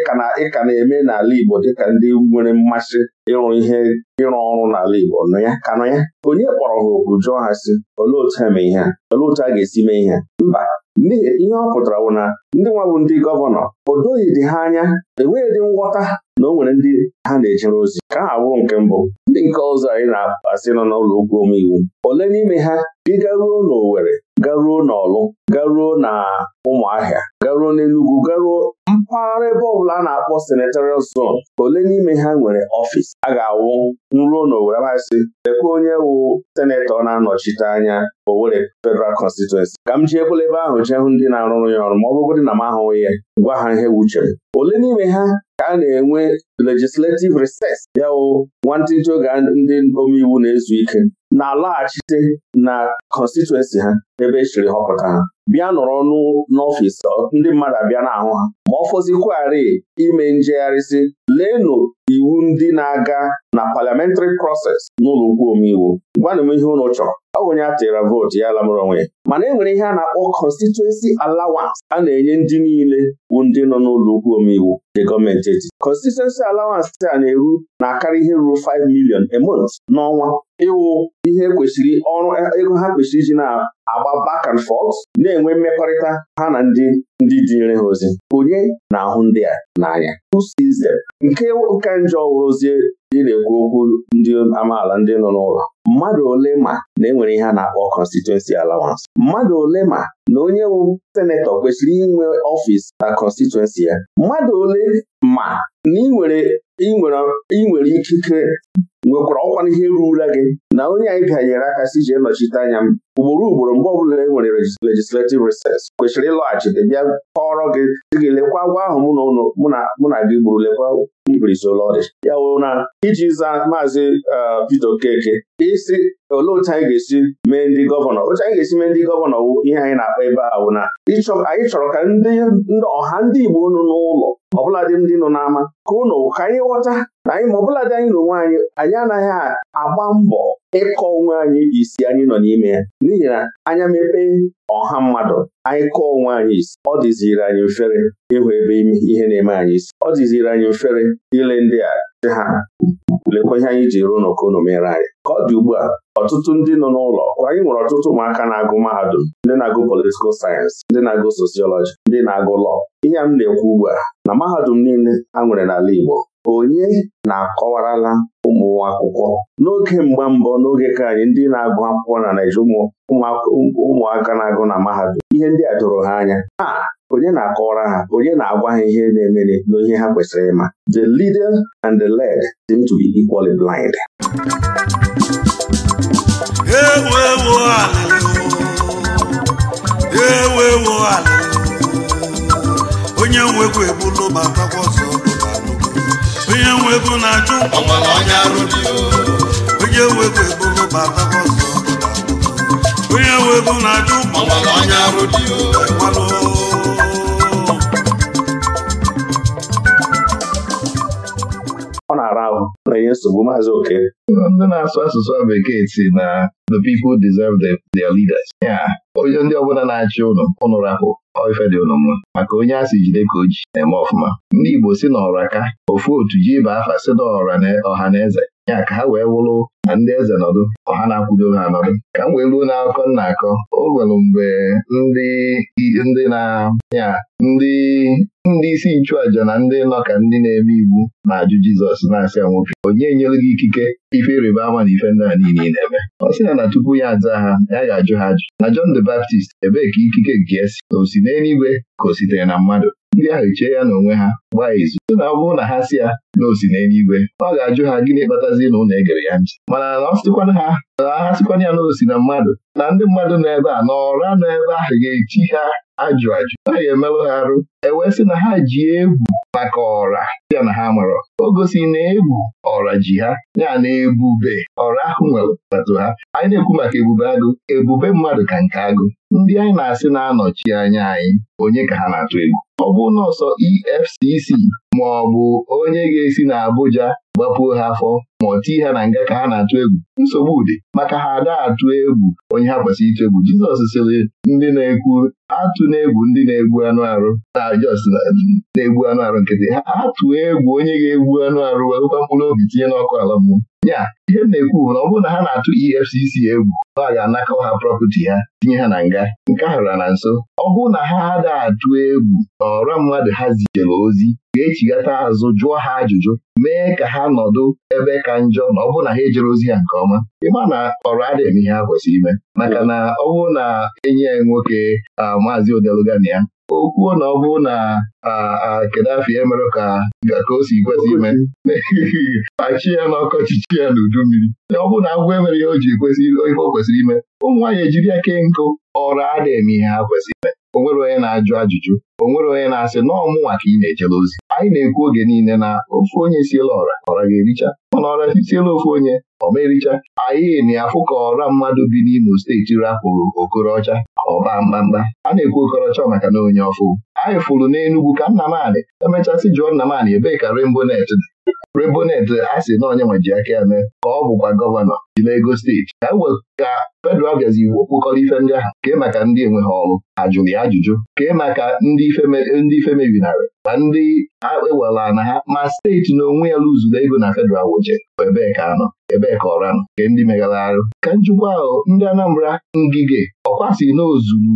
ịka na-eme n'ala Igbo dịka ndị nwere mmasị ịrụ ihe ịrụ ọrụ n'ala Igbo nọ ya ka nọ ya onye kpọrọ ha okwu jụọ ha si olee otu ha mee ihe olee otu a ga-esi mee ihe mba ihe ọ pụtara bụ na ndị nwa bụ ndị gọvanọ o doghị dị ha anya enweghị ngwọta nghọta na o nwere ndị ha na-ejere ozi ka ha abụrụ nke mbụ ndị nke ọzọ anyị na-asị nọ n'ụlọ ugwu omeiwu ole n'ime ha ị garuo n'Owere garuo n'Ọlụ garuo na Ụmụahịa garuo n'enugwu garuo mpaghara ebe ọbụla a na-akpọ senatorial ka ole n'ime ha nwere ọfịs a ga-awụ nruo n'Owere masị lekwa onye wụ senetọ na-anọchite anya Owerri Federal Constituency ka m jiekwela ebe ahụ jee hụ ndị na-arụrụ ya ọrụ ma ọ bụrụgodị na m ahụghị ya gwa ha ihe wuchere ole n'ime ha ka a na-enwe legislative reses. ya wụ nwantịntị oge ndị omeiwu na-ezu ike na-alaghachite na constituency ha ebe e chiri họpụta ha bịa nọrọ n'ọfịs ndị mmadụ abịa n'ahụ ha ma ọ fọzikwari ime njegharịsị leenụ iwu ndị na-aga na parliamentary process n'ụlọ ukwu omeiwu gwanụ m ihe ụlọ chọrọ ọ bụ onye a tịra vootu ya lamụrụ onwe ya mana e nwere ihe a na-akpọ constituency allowance a na-enye ndị niile bụ ndị nọ n'ụlọ ukwu omeiwu nke gọọmenti etiti constituency allowance a na-eru na-akarị ihe ruru 5 million a month n'ọnwa ịwụ ihe kwesịrị ọrụ ego ha kwesịrị iji na-agba back and forth na-enwe mmekọrịta ha na ndị ndị dịnyere ha ozi onye na-ahụ ndị a n'anya who sees nke ụka e njọ wụrụzie ị na-ekwu okwu ndị amaala ndị nọ n'ụlọ mmadụ ole ma na enwere ihe a na-akpọ constituency allowance mmadụ ole ma na onye wụ senetọ kwesịrị inwe ọfịs na constituency ya mmadụ ole ma na ị nwere ikike nwekwara ọkwa ihe rurula gị na onye anyị bịanyere aka si ji nọchite anya m ugboro ugboro mgbe ọbụla e nwere legislativ reses kwesịrị ịlọghachite bịa kọrọ gị dị gị lekwa agwa ahụ mụ na gị gburu lekwa rizolọdị ya wụ na iji zaa maazị Peter Okeke isi olee otu anyị ga-esi mee ndị gọvanọ otu anyị ga-esi mee ndị gọvanọ wụ ihe anyị na-akpa ebe a wụ na anyị chọrọ ka ndị ọha ndị Igbo nụ n'ụlọ ọbụladị ndị nọ n'ama ka ụnụ ka anyị ghọta na anyị ma ọbụladị anyị na onwe anyị anyị anaghị agba mbọ ịkọ onwe anyị isi anyị nọ n'ime ya n'ihi na anya mepe ọha mmadụ anyị kọọ onwe anyị isi ọ dịziri anyị mfere ịhụ ebe ihe na-eme anyị isi ọ dịziri anyị mfere ile ndị a dị ha lekwa ihe anyị ji ruo n'okono mere anyị ka ọ dị ugbu a ọtụtụ ndị nọ n'ụlọ anyị nwere ọtụtụ ụmụaka na-agụ mahadum ndị na-agụ politikal sayensị ndị na-agụ sosiọlọji ndị na-agụ lọọ ihe m na-ekwu ugbu a na mahadum niile ha nwere n'ala Igbo onye na-akọwarala ụmụ akwụkwọ n'oge mgba mbọ n'oge ka anyị ndị na-agụ akwụkwọ na Naijiria, ụmụaka na-agụ na mahadum ihe ndị a doro ha anya a onye na-akọwara ha onye na-agwa ha ihe na emere n'ihe ha kwesịrị ịma the leader and the led seem to be equally blind onye onye nwe ego na-ajụ onye nwe ego ebolo bata ọzọ onye nwe na-ajụ ọ na-ara ahụ na-enye nsogbu maazị oke ndị na-asụ asụsụ bekee si na the people deserve their leaders ya onye ndị ọbụla na-achị ụnụ ụnụ rapụ ife dị ụnụ mma maka onye a jide ka o ji na-eme ọfụma ndị Igbo si n'ọra ka ofu otu ji ibe afa si n'ọra na ọha na eze ya ka ha wee wụrụ na ndị eze nọdụ ọha na-akwụdo ha nọdụ ka m wee ruo n'akụkọ nna akọ o nwere mgbe ndị na-anya ndị ndị isi nchụàjà na ndị nọ ka ndị na-eme iwu na-ajụ Jizọs na-asị ya nwoke onye nyere gị ikike ife ịrịba ama na ife ndị a niile na-eme ọ sị ya na tupu ya aza ha ya ga-ajụ ha ajụ na John the Baptist ebee ka ikike nke esi o si n'eluigwe ka o sitere na mmadụ ndị ahụ chee ya n'onwe ha gbaa izu sị na ọ na ha si ya na n'eluigwe ọ ga-ajụ ha gịnị kpatazi na ụlọ egere ya ntị mana na ọ sịkwana ha ahasịkwana ya osi na mmadụ na ndị mmadụ nọ ebe a na nọ ebe ahụ ga eji ha ajụ ajụ naghị emerụ ha arụ ewesị sị na ha ji egwu maka ọra ya na ha marọ o gosi na egwu ọra ji ha ya na ebube ọra ahụ nwere atụ ha anyị na-ekwu maka ebube agụ ebube mmadụ ka nke agụ ndị anyị na-asị na-anọchi anya anyị onye ka ha na-atụ egwu ọ bụ nọọsọ EFCC ma ọ bụ onye ga-esi na Abuja gbapuo ha afọ ma ọ tii ha na nga ka ha na-atụ egwu nsogbu ụdị maka ha ada atụ egwu onye ha kwesịrị ito egwu Jizọs sịrị ndị na-ekwu atụ na-egwu ndị na-egbu anụ arụ na na-egbu anụ arụ nkịtị ha Atụ egwu onye ga-egbu anụ arụ wewekwa mkpụrụ obi tinye n'ọkụ ala mmụọ ya ihe m na-ekwu bụ na ọ bụrụ na ha na-atụ EFCC egwu na ga-anakọ ha prọpati ha tinye ha na nga nke a na nso ọ bụrụ na ha ada atụ egwu na ọra mmadụ ha zijere ozi ga-echigata azụ jụọ ha ajụjụ mee ka ha nọdụ ebe ka njọ na ọ bụrụ na ha ejere ozi ya nke ọma ịma na ọrụ adịghị ihe ha kwesịrị ime maka na ọ bụrụ na enye nwoke a maazị Odelugani ya o kwuo na ọ bụ na Kadafi emere ka ka o si kwesị ime achị ya na ọkọchịchi ya n'udu mmiri ọ bụrụ na agwọ emere ya o ji kwesị ihe o kwesịrị ime ụmụ nwaanyị ejiri aka nkụ ọrụ ada eme ihe ha kwesịrị ime o onye na-ajụ ajụjụ o onye na-asị na ọmụnwa ka ị na-ejele ozi anyị na-ekwu oge niile na ofu onye siela ọra ọra ga-ericha mana ọra sitiela ofu onye ọ ericha anyị na-afụ ka ọra mmadụ bi n'Imo steeti rapụrụ Okorocha ọba mkpamkpa, a na-ekwu okọrọcha maka na onye ọfụ anyị fụrụ n'Enugwu ka nna Nnamani emechasị jụọ Nnamani ebee ka Rainbow Net dị Rebonet eh, a sị na onye nwe ji aka ya mee ka ọ bụkwa gọvanọ ji n'ego steeti ka ka federal bịazi wokpụkọrọ ife ndị ahụ kee maka ndị enweghị ọrụ ha ya ajụjụ kee maka ndị ife mebinarị ma ndị ewela na ha ma steeti na onwe ya lụzuru ego na fedral woje ebee ka anọ ebee ka ọra nọ nke ndị megara arụ ka njikwa ahụ ndị Anambra ngige ọkwasị n'ozuru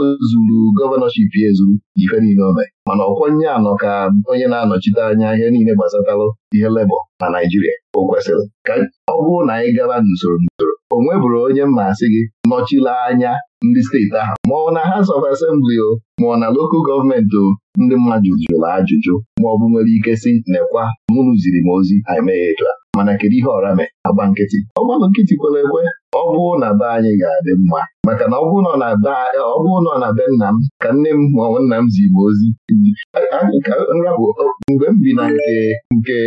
uh, gọvanọship ya ezuru ife niile o mee mana ọkwọ nye anọ ka onye na-anọchite anya ihe niile gbasatalụ ihe lebọ na Naịjirịa o kwesịrị ka ọ bụrụ na anyị gara n'usoro n'usoro o nweburu onye mmasị gị nọchila anya ndị steeti ahụ maọbụ na House of Assembly o ọ na lokal gọọmenti o ndị mmadụ jụrụ ajụjụ ma ọ bụ nwere ike si nekwa mụnụ ziri m ozi emeghe a mana kedu ihe ọra mee agba nkịtị ọgbakọ nkịtị kwere ekwe ọ bụrụ na be anyị ga-adị mma maka na ọ bụrụ nọ na be nna m ka nne m maọbụ nna m zi m ozi mgbe m bi na nke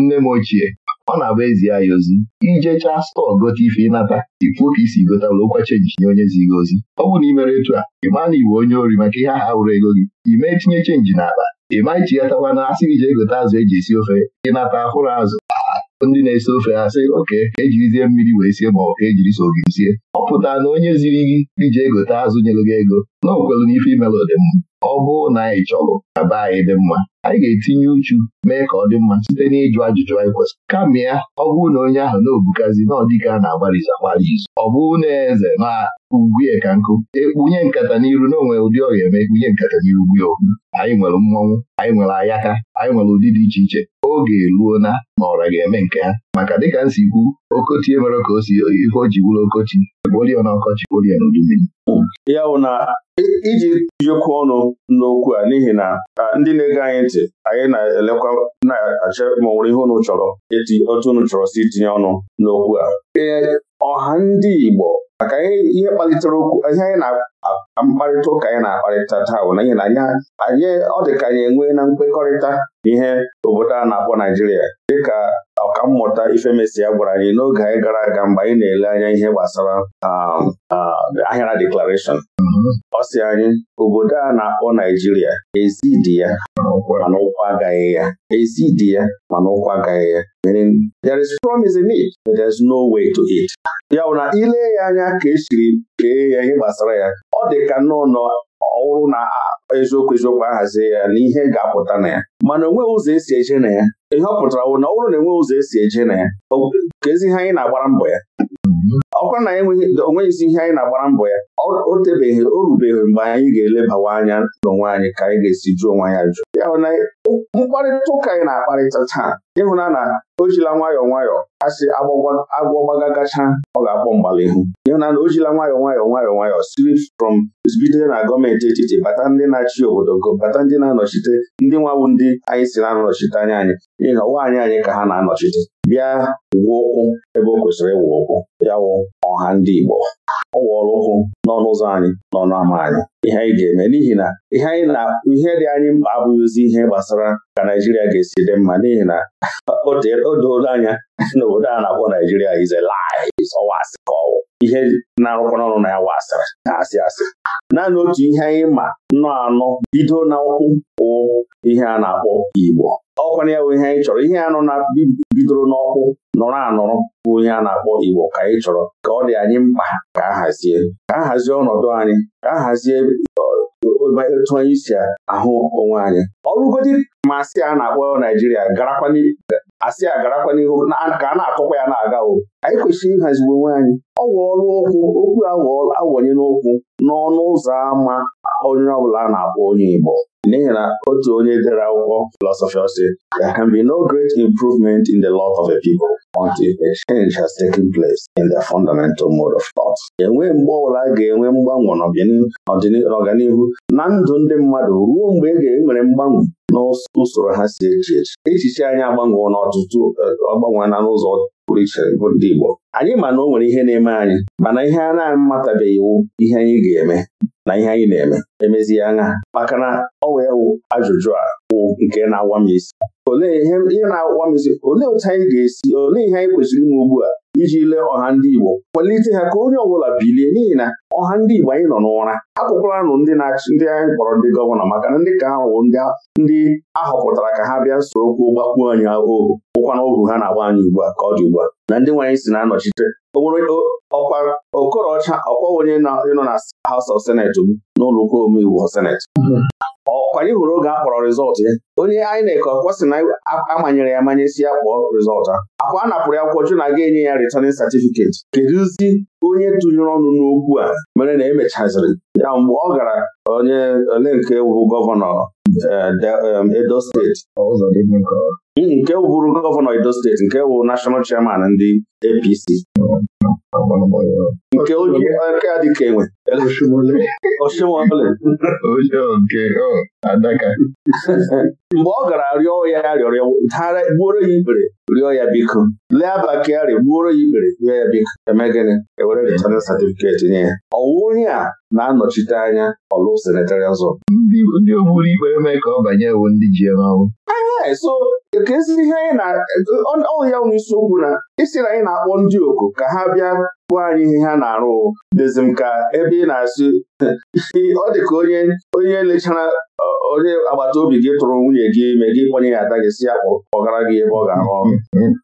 nne m ochie ọ na-abụ ezie ya ozi ijecha stọọ gote ife ịnata ikwu ka isi gotalụ ụkwa chenji nye onye zi gị ozi ọ bụrụ na ị mere etu a ị maa na iwe onye ori maka ihe aha wụrụ ego gị ị mee tinye chenji n'akpa ị ya ichighatakwa na asị ije jee azụ eji esi ofe ịnata ahụrụ azụ ndị na-ese ofe ha sị oke ejirizie mmiri wee sie ma ọ ka e ejiri so gị sie ọ pụtara na onye ziri gị ije egote azụ nyelụ gị ego na okwelu n'ife imelụ dị mma ọ bụụ na anyị chọrụ na be anyị dị mma anyị ga-etinye uchu mee ka ọ dị mma site n'ịjụ ajụjụ anyị kwesịrị kamgbe ya ọ bụụ na onye ahụ na-obukazi na a na-agbarizi agbarizi ọ bụrụ na eze na ugwue ka nkụ ekpunye nkata n'iru na onwe ụdị ọrịa eme ekpunye nkata n'iru gbuo anyị nwere mmọnwụ anyị nwere ayaka anyị nwere ụdị dị iche iche oge eruo na na ọra ga-eme nke ha maka dịka nsi kwu okoti emere ka o si ihe o ji bụrụ Okochi. gbolie na ọkọchị na ya bụ na e, iji ọnụ n'okwu a n'ihi na ndị na-ege anyị iche anyị na-elekwa na-achọ ma ọ nwere ihe unu chọrọ eti otu unu chọrọ si tinye ọnụ n'okwu a ee ọha ndị Igbo maka ihe kpalitere okwu ihe anyị na mkparịta ụka anyị na-akparịta taa bụ na ihe na anyị ọ dị ka anyị enwee na mkpekọrịta ihe obodo a na-akpọ Naijiria dịka ọkammụta ya gwara anyị n'oge anyị gara aga mgbe anyị na-ele anya ihe gbasara um, um, ahịara deklarashọn ọ sị anyị obodo a na-akpọ Naijiria ezi dị ya mana ụkwụ agaghị ya ezi ya mana ụkwụ agaghị ya meaning there is promise in it but there is no way to it ya bụ na ile ya anya ka esiri kee ya ihe gbasara ya ọ dị ka nnọọ ọhụrụ na eziokwu eziokwu ahazie ya na ihe ga-apụta na ya mana onweghị ụzọ esi eje na ya ihe ọ pụtara bụ na ọhụrụ e na enweghị ụzọ esi eje na ya ka ezi ihe anyị na-agbara mbọ ya ọkwa na onweghị e isi ihe anyị na-agbara mbọ ya o tebeghị o rubeghị mgbe anyị ga-elebawa anya n'onwe anyị ka anyị ga-esi jụọ onwe anyị ajụ ya mkparịta ụka anyị na-akparịta taa ịhụna na o jila nwayọọ nwayọọ asị agwọ gacha ọ ga-akpọ mgbalihu ịhụna na o jila nwayọọ nwayọọ nwayọọ nwayọọ siri from bido na gọọmenti etiti bata ndị na-achị obodo go bata ndị na-anọchite ndị nwawu ndị anyị si na-anọchite anya anyị n'ihi na nwaanyị anyị ka ha na-anọchite bịa gwuo ụkwụ ebe o kwesịrị ịwụ ụkwụ ya wụ ọha ndị Igbo ọ wụọla ụkwụ n'ọnụ ụzọ anyị n'ọnụ ama anyị ihe anyị ga-eme n'ihi na ihe anyị na ihe dị anyị mkpa abụghịzi ihe gbasara ka Naijiria ga-esi dị mma n'ihi na o doola anya na obodo a na-akpọ Naijiria ize. ọwa asị ka ọwụ ihe na-arụkwana ọrụ na ya wa asịrị na asị asị naanị otu ihe anyị ma nnọọ anọ bido na ụkwụ wụ ihe a na-akpọ Igbo ọkwana ya bụ ihe anyị chọrọ ihe anụ na bidoro n'ọkwụ nọrọ anọrọ bụ ihe a na-akpọ Igbo ka anyị chọrọ ka ọ dị anyị mkpa ka a hazie ka a hazie ọnọdụ anyị ka a hazie uh, etu anyị si ahụ onwe anyị ọrụgodi masị a na-akpọ Naijiria garakwa asị agarakwa n'ihu ka a na-akọkwa ya na-aga o anyị kwesịrị ịhaziwe onwe anyị ọ ọrụ ọkụ okwu awọnyela n'okwu n'ọnụ ụzọ ámá onye ọbụla a na-akpọ onye Igbo n'ihi na otu onye dere akwụkwọ filọsọfị ọ sị there can be no great improvement in the lot of a people until a change has taken place in the fundamental mode of thought. enwe mgbe ọbụla ga-enwe mgbanwe n'ọganihu na ndụ ndị mmadụ ruo mgbe e ga-enwere mgbanwe n'usoro ha si echi echi echiche anyị agbanwe n'ọtụtụ eh, agbanweela n'ụzọ pụrụ iche bụ ndị Igbo anyị ma na o nwere ihe na-eme anyị mana ihe a na-amatabeghị iwu ihe anyị ga-eme na ihe anyị na-eme emezie aṅa maka na ọ wee wụ ajụjụ a bụ nke na-awa m isi olee ihe na-awa m isi olee otu anyị ga-esi olee ihe anyị kwesịrị ime ugbu a iji lee ọha ndị Igbo kwalite ha ka onye ọbụla bilie n'ihi na ọha ndị Igbo anyị nọ n'ụra akpụkpọranụ ndị na ndị anyị kpọrọ ndị gọvanọ maka na ndị ka ha wụ ndị ahọpụtara ka ha bịa soro okwu gbakwuo anyị ohu bụkwa na ha na-agba anyị ugbu a ka ọ dị ugbu a na ndị nwaanyị si na-anọchite ọkwa okorocha ọkwa onye nọ na House of Senate m n'ụlọ ụka omeiwu Senate ọkwa anyị hụrụ oge a kpọrọ rizọtụ ya onye INEC ọkwa sị na amanyere ya amanye si ya kpọọ a? akwa a napụrụ ya kwụkwọ na aga enye ya returning certificate kedụzi onye tụnyere ọnụ n'okwu a mere na emechaziri ya mgbe ọ gara onye ole nke bụ gọvanọ eh, um, Edo steeti n'ihi nke wụrụ gọvanọ Edo steeti nke wụ nashọnal chairman ndị APC nke oji aka dị ka enwe oshimole mgbe ọ gara rịọ ya rịọrọ gbuoro ya ikpere rịọ ya biko lee abakari gbuoro ya ikpere rịọ ya biko eme gịnị ewere rịtana satifiketi nye ya ọwụ onye a na-anọchite anya ọlụ senetari ọzọ ndị ogburu ikpere mee ka ọ banye ewu ndị ji eme ọnwụ so ka ezi ihe anyị na ọ ya nwe isiokwu na isi e na anyị na-akpọ ndị oku ka ha bịa bụ anyị ihe ha na-arụ dịzi m ka ebe ị na-asị ọ dị ka onye onye lechara onye agbata obi gị tụrụ nwunye gị ime gị kpọnye ya ada gị si ya gara gị ebe ọ ga-arụ ọrụ onye na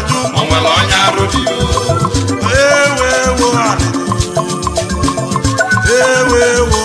ajụ onye arụ dị ewewo Ewewo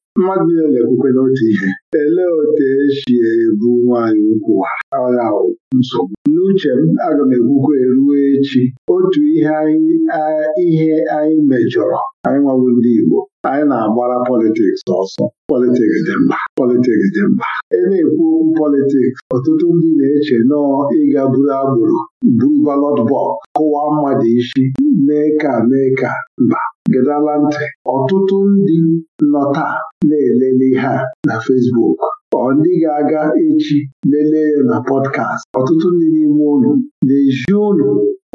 mmadụ niile na-ekwukwe n'otu ihe elee otu esi ebu nwaanyị ukwu agha nsogbu n'uche m aga m ekwukwe ruo echi otu ihe ihe anyị mejọrọ anyị nwabụ ndị Igbo anyị na-agbara politiks ọsọ politiks dị mkpa politiks dị mkpa e na-ekwu okwu politiks ọtụtụ ndị na-eche nọọ ịga buru agbụrụ buru balọt bọk, kụwaa mmadụ isi mee ka mee ka mba gedala ntị ọtụtụ ndị nọ na-elele ihe a na Fesbuk. ọ ndị ga-aga echi lelee ya na pọdkast ọtụtụ ndị n'ime ụlọ na-eji ụlọ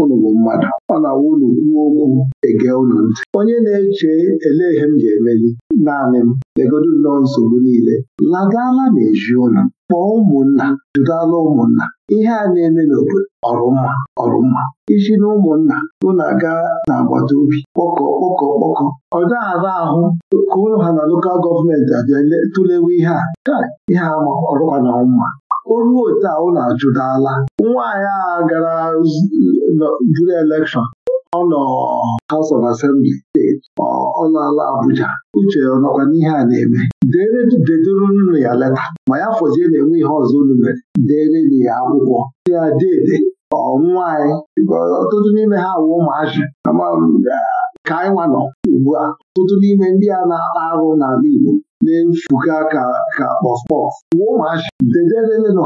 unu bụ mmadụ ọ na-awụ unu kwuo okwu ege unu ntị onye na-eche elee ihe m ji emeli naanị m legodu nnọọ nsogbu niile ladala na eji ụnụ kpọọ ụmụnna jụdala ụmụnna ihe a na-eme n'obodo ọrụmma ọrụmma isi na ụmụnna unu aga n'agbata obi kpọkọ kpọkọ kpọkọ ọ ara ahụ ka ụlọ ha na lokal gọọmenti abịa tụlewe ihe a ihe ama ọrụkwa na mma o ruo otu a ụlọ ajụdala nwaanyị a gara bụrụ elekshọn ọ nọ House of Assembly steeti ọ laala Abuja uche ọ nọkwa n'ihe a na-eme dere dedoronu ya leta ma ya fọzie na-enwe ihe ọzọ unu mere dere ya akwụkwọ ya dede ọnwaanyị ọtụtụ n'ime ha wụ ụmụazị ka anyị nwa nọ ugbu a ọtụtụ n'ime ndị a na-akpa arụ n'ala Igbo na-efuga ka ka kpọspọs wuo ụmụachi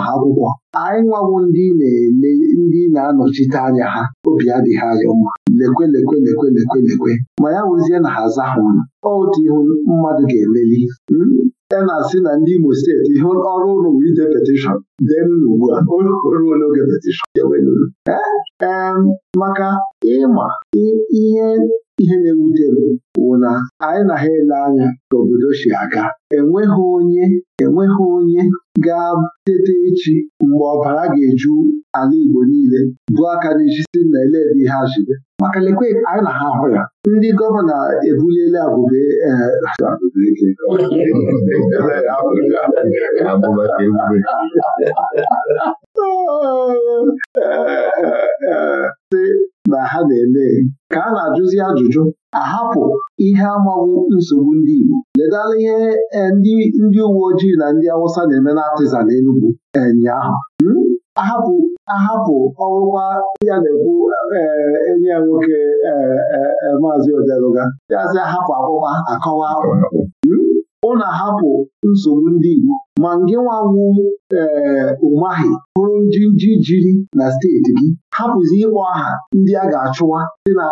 ha akwụkwọ anyị nwawo ndị na-ele ndị na-anọchite anya ha obi adịghị anyị mma lekwe lekwe lekwe lekwe lekwe ma ya wụzie na ha aza ha ọnụ otu ihu mmadụ ga-emeli hmm? e na-asị na ndị Imo steeti ihe ọrụ ụlọ bụ ide petishọn deenụ ugbu a ruo n'oge petishọn ee maka ịma ihe ihe na-ewute m bụ na anyị na ha ele anya ka obodo si aga enweghị onye enweghị onye ga-tete echi mgbe ọbara ga-eju ala Igbo niile bụ aka n'ijisi nna eledi ha jide maka lekwe anyị na ha hụ ya ndị gọvanọ ebuliela abụba sị e, e, e, na ha na-eme ka a na-ajụzi ajụjụ ahapụ ihe amaghị nsogbu ndị Igbo ledala ihe ndị uwe ojii na ndị Awụsa na-eme na atịza na ụnyaahụ hmm? ahapụ ahapụ ọrụkwa ya na-ekwu eh, enyi ya nwoke eh, eh, maazị Odeluga yazi ahapụ akwụkwa akọwa na hmm? ahapụ nsogbu ndị Igbo ma ngị nwanwu ee hụrụ bụrụ ji jiri na steeti gị hapụzi ịkpọ aha ndị a ga-achụwa dị na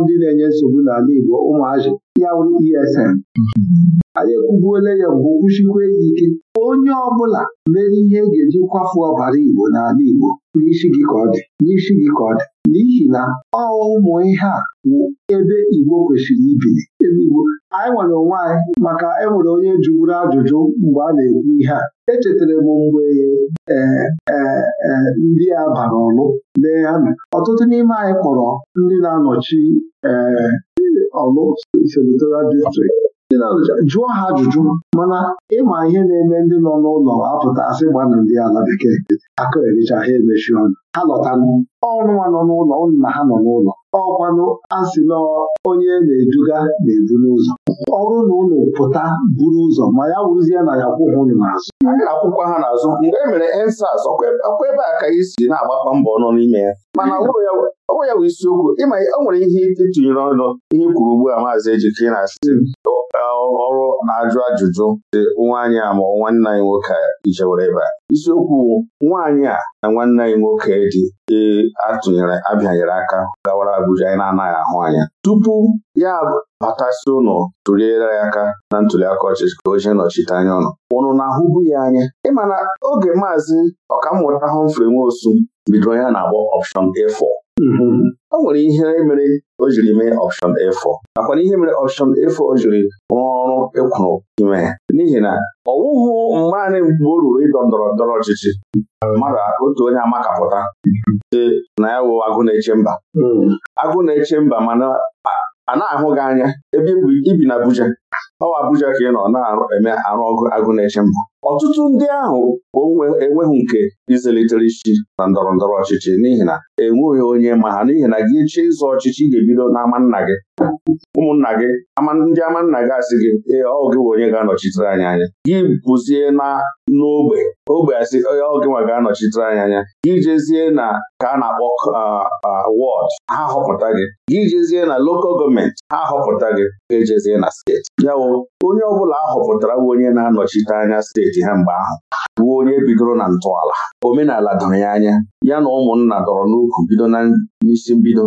ndị na-enye nsogbu n'ala Igbo ụmụazị ya e mm-hmm. bụ ESN anyị ekwubuola ya mgbe kwuchikwa ya ike onye ọ bụla mere ihe e ga-eji kwafu ọbara Igbo n'ala Igbo n'isi gị ka ọ dị n'isi gị ka ọ dị n'ihi na ọ ụmụ ihe a wụ ebe Igbo kwesịrị ibili ebe Igbo anyị nwere onwe anyị maka enwere onye jụrụ ajụjụ mgbe a na-ekwu ihe a echetara m mgbe e, e, ndị a bara ọlụ lee ha ọtụtụ n'ime anyị kpọrọ ndị na-anọchi ọlụ senatorial district ndị na jụọ ha ajụjụ mana ịma ihe na-eme ndị nọ n'ụlọ apụta asị gbana ndị ala bekee aka ericha ha emechi ọnụ ha lọtanụ nwa nọ n'ụlọ ụnụ na ha nọ n'ụlọ ọkwanụ asị na onye na-eduga na-edu n'ụzọ ọrụ na ụlọ pụta buru ụzọ ma ya wụzie na ya kwụghị ụlọ n'azụ akwụkwọ ha n'azụ mgbe e mere ensas ọkwa ebe a ka isi na-agbakwa mbọ ọnụ n'ime ya mana hmm. ọ ya bụ isiokwu ịma o nwere ihe ịtụnyere ọnụ ihe kwuru ugbu a maazị Ejike na hmm. ọrụ na-ajụ ajụjụ dị nwaanyị a ma nwanne anyị nwoke ijewere ebe a isiokwu nwaanyị a na nwanne anyị nwoke dị e, atụnyere abịanyere aka gawara Abuja anyị na-anaghị ahụ anya tupu ya batasi ụnụ tụliere ya aka na ntuliaka ọchịchị ka o jee nọchite anya ọnụ ụnụ na-ahụbu ya anya ịma na oge maazị ọkammụta Humphrey Nwosu bidoro ya na-agbọ ọpshọn A4 o nwere ihe mere o jiri mee ọpshọn A4 nakwa na ihe mere ọpshọn A4 o jiri rụọ ọrụ ịkwụrụ e ime ya n'ihi na ọ wụghụ anyị mgbe o ruru ịdọ ndọrọ ndọrọ ọchịchị mmadụ otu onye amakapụta dị mhm. na ya wụ agụ na-eche mba mhm. agụ na-eche mba mana a na-ahụ gị anya ebe ibi na Abuja ọwa Abuja ka ị nọ na-eme arụ ọgụ agụ na-eche mba ọtụtụ ndị ahụ enweghị nke izelitere isi na ndọrọ ndọrọ ọchịchị n'ihi na enweghị onye ma ha n'ihi na gị chie ịzụ ọchịchị ị ga-ebido n'ama nna gị ụmụnna gị ndị ama nna gị asị gị ee ọ gị bụ onye ga-anọchitere anyị anya gị bụzie na n'ogbe ogbe asị oge nwa ga-anọchitere anya anya gị jezie na ka a na-akpọ wọd ha họpụta gị gị jezie na lokal gọọmenti ha họpụta gị ejezie na steeti yawụ onye ọ bụla họpụtara bụ onye na-anọchite anya steeti ha mgbe ahụ bụ onye bidoro na ntọala omenala doro ya anya ya na ụmụnna dọrọ n'ukwu bido na n'isi mbido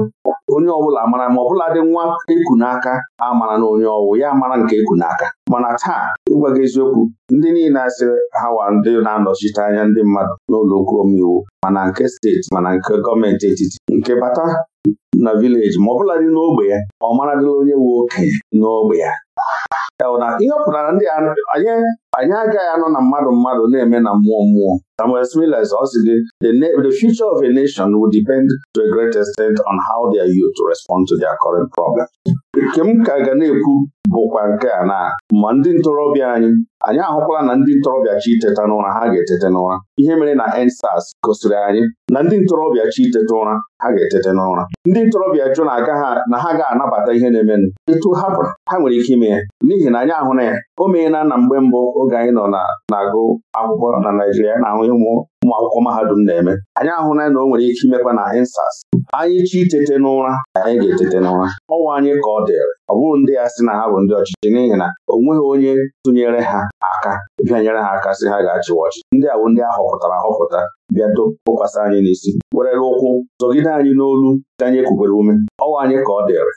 onye ọbụla e mara ma ọbụla dị nwa eku n'aka amara na onye ọwụ ya mara nke eku n'aka mana taa ịgwa gị eziokwu ndị niile asị ha wa ndị na-anọchite anya ndị mmadụ n'ụlọ okwu omeiwu mana nke steeti mana nke gọọmenti etiti nke bata na vileji ma bụla dị n'ogbe ya ọ maradịla onye wu okenye n'ogbe ya ịhọpụtara ndị anyị anyị agaghị anọ na mmadụ mmadụ na-eme na mmụọ mmụọ Samuel Smiles ọ sị the future of a nation will depend to a great extent on how their youth respond to their current problem. Nke m ka ga na-ekwu bụkwa nke a na ma ndị ntorobịa anyị anyị ahụkwala na ndị ntorobịa chi iteta n'ụra ha ga-etete n'ụra ihe mere na EndSARS gosiri anyị na ndị ntorobịa chi iteta ụra ha ga-etete n'ụra ndị ntorobịa jụ na ha ga-anabata ihe na-emenụ etu hapụrụ ha nwere ike ime ya n'ihi na anyị ahụ na ya o meela na mgbe mbụ oge anyị nọ na-agụ akwụkwọ na Naijiria na-ahụ ụmụ ụmụ akwụkwọ mahadum na-eme anyị ahụla na o nwere ike imekwa na insas anyị chi itete n'ụra anyị ga-etete n'ụra ọnwa anyị ka ọ dịrị ọ bụrụ ndị ya sị na ha bụ ndị ọchịchị n'ihi na o nweghị onye tụnyere ha aka bịa nyere ha aka sị ha ga-achịwa ọchịchị ndị a bụ ndị a họpụtara ahọpụta bịa tụkwasị anyị n'isi werere ụkwụ zọgide anyị n'olu ka anyị kwubere ume ọnwa anyị ka ọ dịrị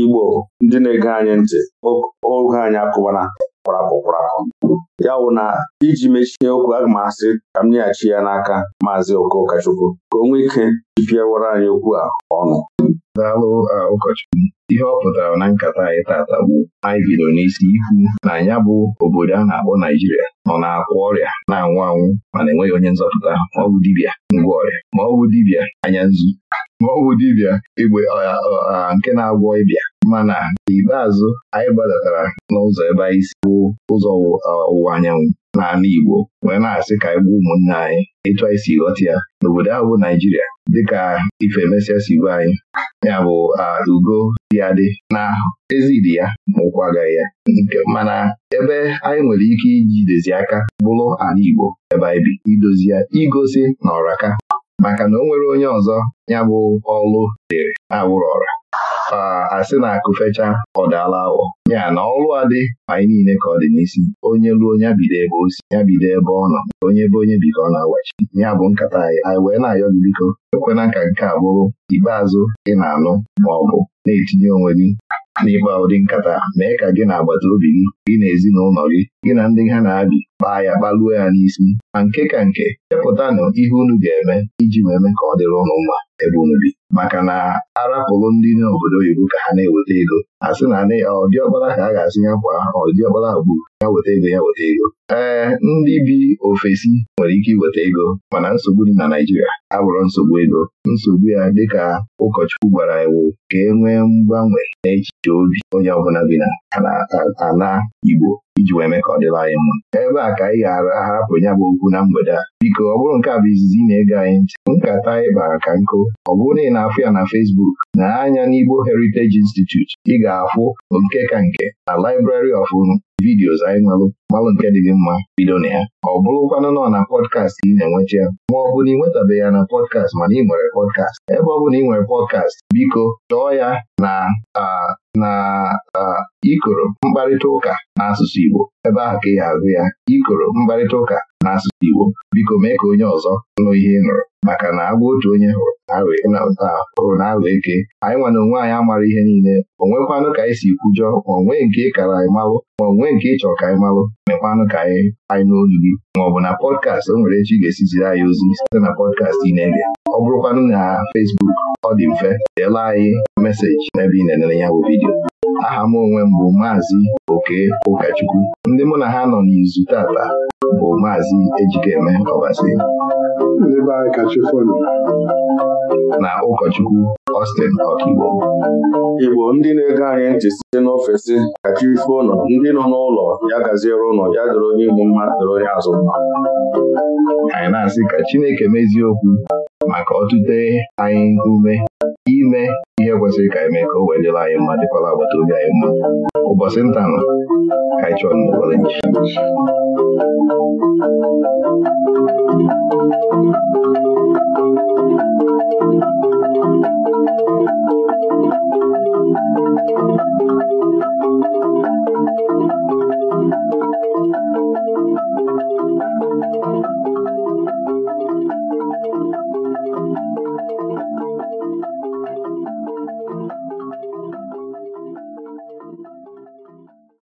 Igbo ndị na-ege anyị ntị oge anyị akụbana kwarapụ kwarapụ ya wụ na iji mechie okwu aga ma asị ka m nyeghachi ya n'aka maazị Chukwu, ka o nwee ike jipiawara anyị okwu a ọnụ daalụ ụkọchukwu ihe ọ pụtara na nkata anyị tata bụ anyị bido n'isi ikwu na ya bụ obodo a na-akpọ Naijiria nọ na-akwa ọrịa na-anwụ anwụ mana enweghị onye nzọpụta ma dibia, dibịa ngwa ọrịa ma dibia, dibịa anya nzu ma dibịa igbe nke na-agwọ ịbịa mana n'ikpeazụ anyị gbadatara n'ụzọ ebe anyị si bụ ụzọ ọwụwa anyanwụ n'ala Igbo wee na-asị ka anyị gbuo ụmụnne anyị etu anyị si ghọta ya n'obodo ahụ bụ Naijiria dịka ife si gwa anyị ya bụ ugo dị adị na ezidi ya ma ụkwụ agaghị ya mana ebe anyị nwere ike ijidezi aka bụrụ ala Igbo ebe anyị bi idozi ya igosi na ọraka maka na o nwere onye ọzọ ya bụ ọlụ dịrị awụrụ ọra asị na akụ fecha ọ daala awọ ya na ọrụ adị anyị niile ka ọ dị n'isi onye ruo nyabido bido ebe o si ya bido ebe ọ nọ onye ebe onye bi ka ọ na-agwachi ya bụ nkata anyị anyị wee na-ayọ gị biko ekwena ka nke a bụrụ ikpeazụ ị na-anụ ma ọ bụ na-etinye onwe gị n'ịkpa ụdị nkata mee ka gị na agbata obi gị gị na ezinụlọ gị gị na ndị ha na-abị kpaa ya kpaluo ya n'isi ma nke ka nke chepụtanụ ihe unu ga-eme iji wee mee ka ọ dịrị ụnụ mma ebumnobi maka na arapụrụ ndị n'obodo oyibo ka ha na-eweta ego a sị na ọdị ọkpara ka a ga-asị ya kwa ọdị ọkpara bụ ya weta ego ya weta ego ee ndị bi ofesi nwere ike iweta ego mana nsogbu dị na Naijiria abụrụ nsogbu ego nsogbu ya dịka ụkọchukwu gwara iwu ka e nwee mgbanwe n'echiche obi onye ọbụla bi na ala Igbo iji wee mee ka ọ dịla anyị mma ebe a ka anyị ga-ahapụ ya bụ okwu na mgbede a biko ọ bụrụ nke a bụ izizi na-ege anyị ntị nkata anyị bara ka nkụ ọ bụrụ na ị na-afụ ya na Facebook na anya n'Igbo Heritage Institute ị ga-afụ nke ka nke na Library of Unu vidiyo anyị nwelụ gbalụ nke dị gị mma bido na ya ọ bụrụkwanụ nọ na pọdkast ị na-enwecha ya ma ọ bụ na ị nwetabeghị ya na pọdkast mana ị nwere pọdkast ebe ọ bụ na ị nwere pọdkast biko chọọ ya na na ikoro mkparịta ụka n'asụsụ Igbo ebe ahụ ka ị ga-agụ ya ikoro mkparịta ụka n'asụsụ Igbo biko mee ka onye ọzọ nụ ihe ị nụrụ maka na agwa otu onye hụrụ o na aghọ eke anyị nwa onwe anyị amara ihe niile o nwekwanụ ka anyị si kwujọ ma onwe nke ị kara anyị malụ ma onwe nke ị chọrọ ka anyị malụ mekwanụ ka anyị anyị n'olu gị ma ọ bụ na pọdkast o nwere echi ga-esiziri anyị ozi site na pọdkast ị na-ege ọ bụrụkwanụ na fesbuk ọ dị mfe deela anyị meseji n'ebe ị na-enere ya bụ vidiyo aha m onwe m bụ maazị oke ụkọchukwu ndị mụ na ha nọ n'izu tata bụ maazị ejikeme ọbasi na ụkọchukwu Austin Okigbo Igbo ndị na-ege anyị ntị site n'ofesi kacha ife ụlọ ndị nọ n'ụlọ ya gaziere ụlọ ya dịrị onye ihu mma dịrị onye azụ mma anyị na-asị ka Chineke mezie okwu maka ọtụte anyị ume ime ihe kwesịrị ka anyị mee ka o wee dịrị anyị mma dịkwara agbata obi anyị mma ụbọchị ntanụ ka anyị chọrọ nọgoro nchi Thank you.